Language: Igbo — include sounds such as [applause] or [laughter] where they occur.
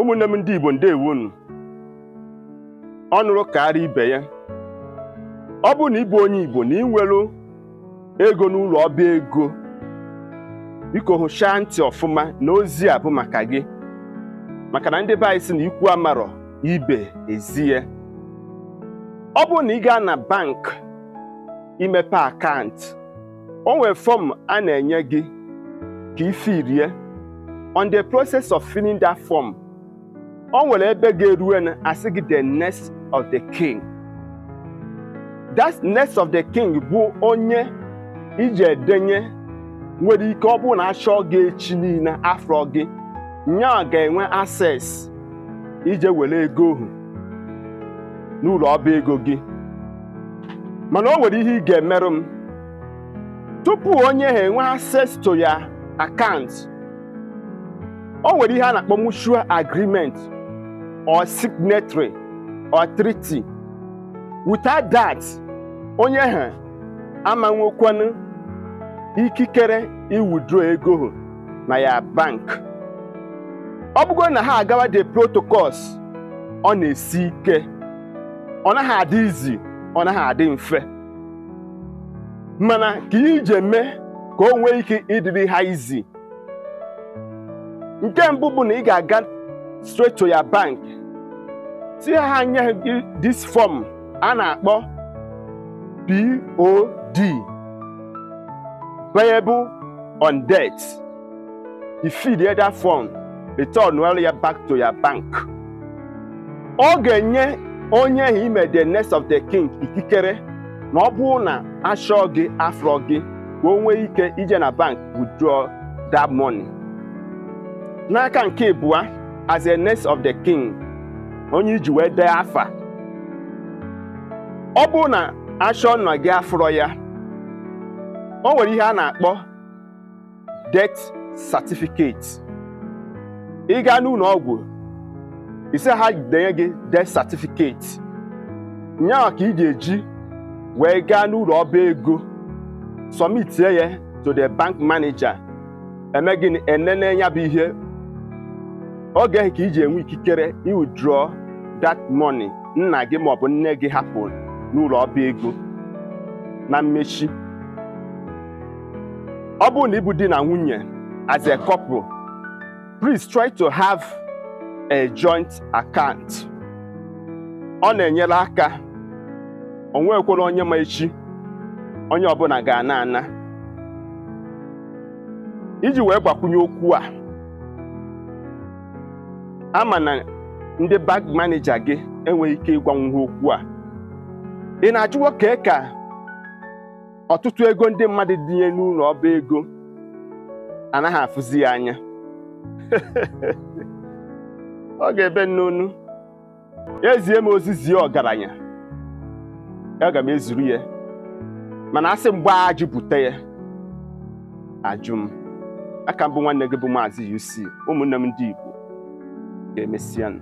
ụmụnne m ndị Igbo ndeewo unu ọ nụrụ karịa ibe ya ọ bụrụ na ịbụ onye Igbo na ịnwelu ego n'ụlọ ọba ego biko hụchaa ntị ọfụma na ozi a bụ maka gị maka na ndị be anyị si na ikwu amarọ ibe ezi ya ọ bụrụ na ị gaa na bank imepe akaụntụ o nwere fọm a na-enye gị ka ifirie on the process of filling that form o nwere ebe ga-eruwe na asị gị the nest of the king that nest of the king bụ onye iji edenye nwere ike ọ bụrụ na achọ gị echi niile afọ gị nya ga-enwe access iji were ego ohu n'ụlọ ọba ego gị mana o nwere ihe ị ga-emerụ m tupu onye ha enwe access to ya account o nwere ihe a na-akpọ mutual agreement or signatory or treaty without that onye ha amanwokwanụ ikikere iwudraw ego na ya bank ọ bụgo na ha agawa the protocols ọ na-esi ike ọ naghị adị izi ọ naghị adị mfe mana ka ihe ije ka o nwee ike ịdịrị ha izi nke mbụ bụ na ị ga-aga straight to your bank tinye ha nye gị this form a na-akpọ POD payable on debt you fill the other form return well ya back to your bank ọ ga-enye onye ahụ ime the next of the king ikikere na ọ bụrụ na achọọ gị afrọ gị ka o nwee ike ije na bank withdraw that money n'aka nke abụọ as a nurse of the king onye iji wee dee afa ọ bụ na achọ nna gị afọrọ ya o nwere ihe a na-akpọ death certificate ị gaa n'ụlọ ọgwụ ise ha denye gị death certificate nyaa ka ị ga-eji wee gaa n'ụlọ ọba ego sọmitie ya to the bank manager eme gịnị enene ya bụ ihe oge gaghị ka iji enwe ikikere draw that money nna gị maọbụ nne gị hapụrụ n'ụlọ ọba ego na mmechi ọ bụrụ na ịbụ di na nwunye as a couple please try to have a joint account ọ na-enyere aka nwekwara onye ma echi onye ọbụla ga-ana ana iji wee gbakwunye okwu a ama na ndị bank maneja gị enweghị ike ịgwanwu okwu a ị na achụ nwoke ka ọtụtụ ego ndị mmadụ nye n'ụlọ ọba ego anaghị afụzi ya anya [laughs] ọ ga-ebe n'onu ezie m ozizi ọgaranya aga m ezuru ya mana asị mgbe a bute ya ajụ m aka mbụ nwanne gị bụ maazị UC ụmụnne m ndị Igbo Et Messiens.